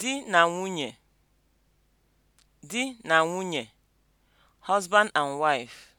di na nwunye di na nwunye (husband and wife)